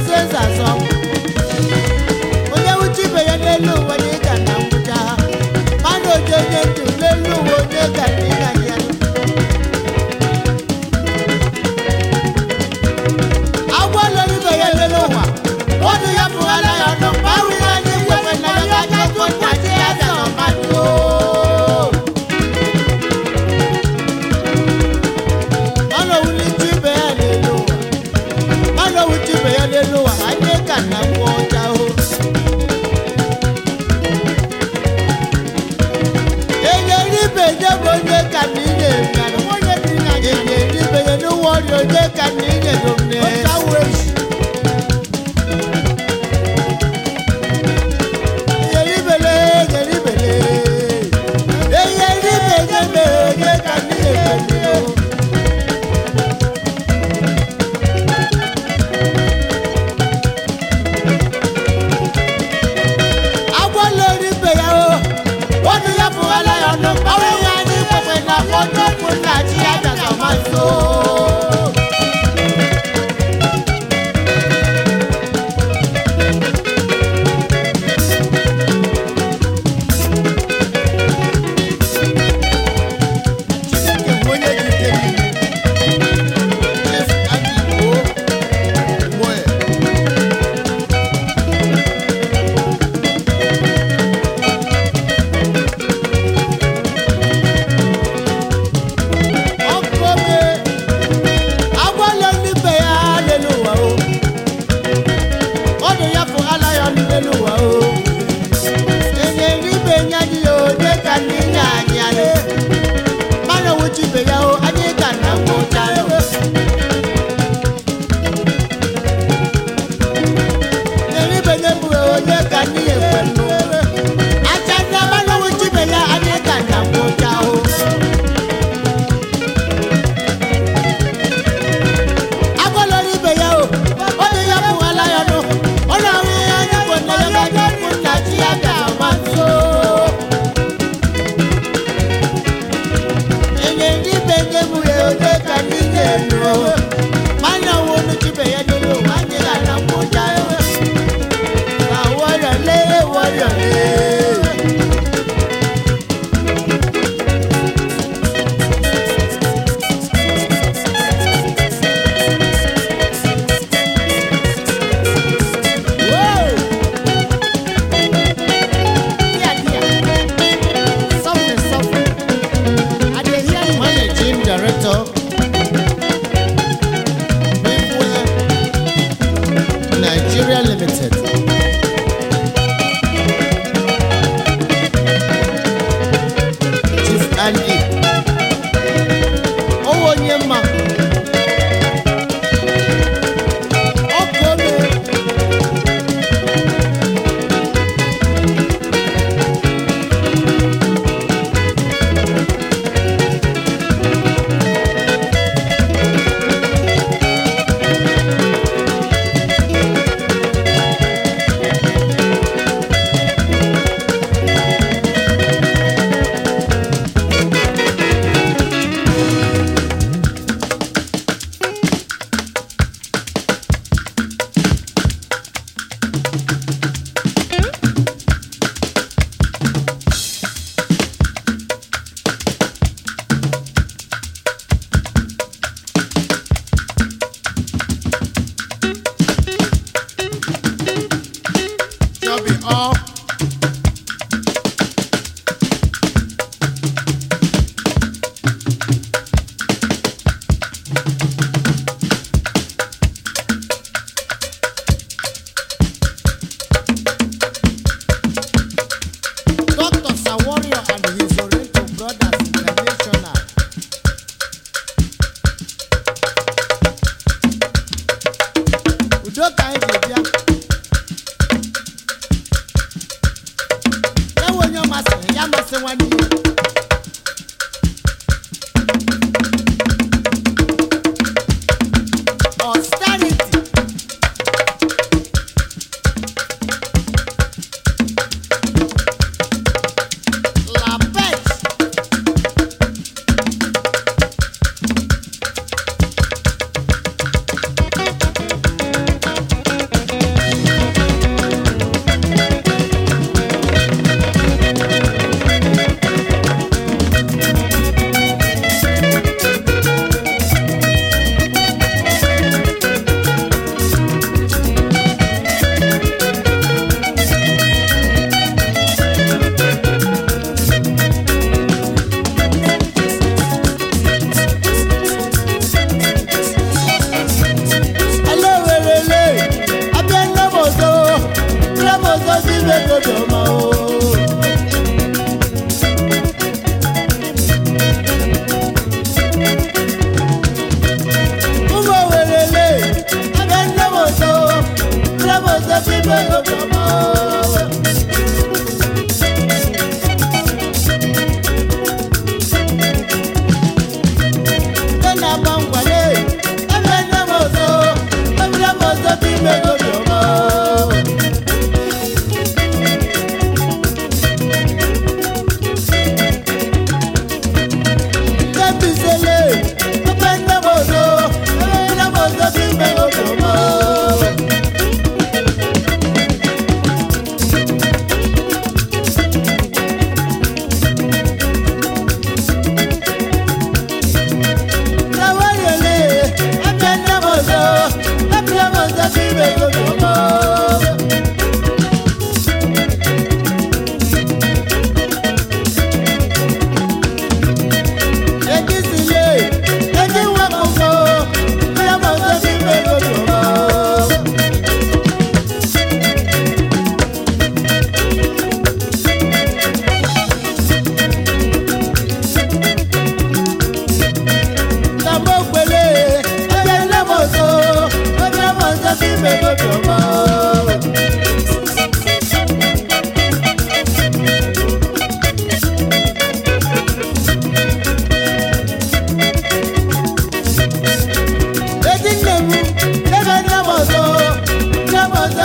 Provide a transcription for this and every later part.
azụ eze azụ ọnwụ ya n'elu uwe na na ngwụcha ha mana oji onye ndụ n'elu uwe onye ga onye bi na gị ga-edibe ya n'ụwa ọrịa onye ka na inye Nigeria Limited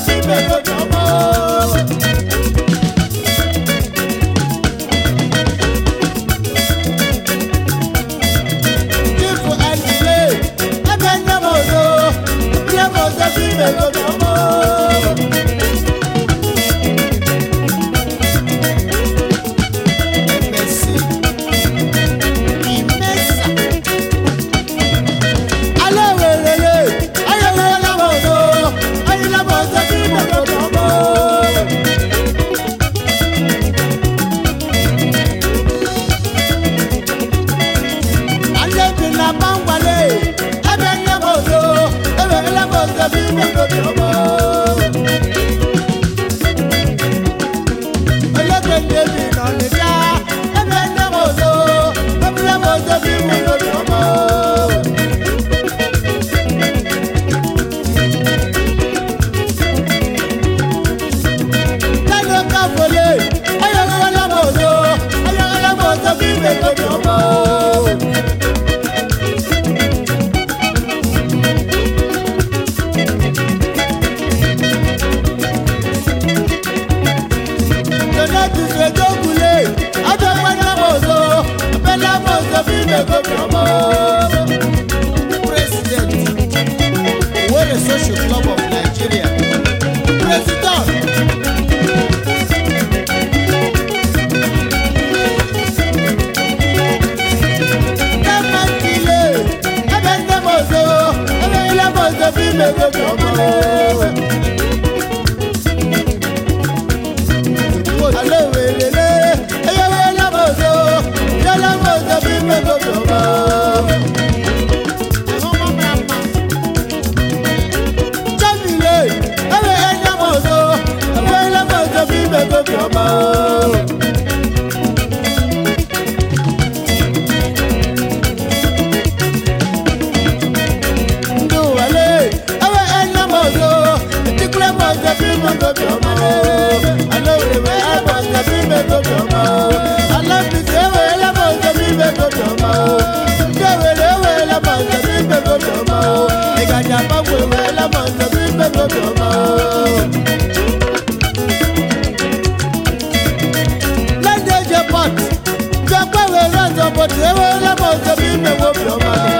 Brasil, ọgaranya gbanweela ma nzọbi mmepe obiọma lede eje pot ma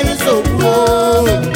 anyị nsogbu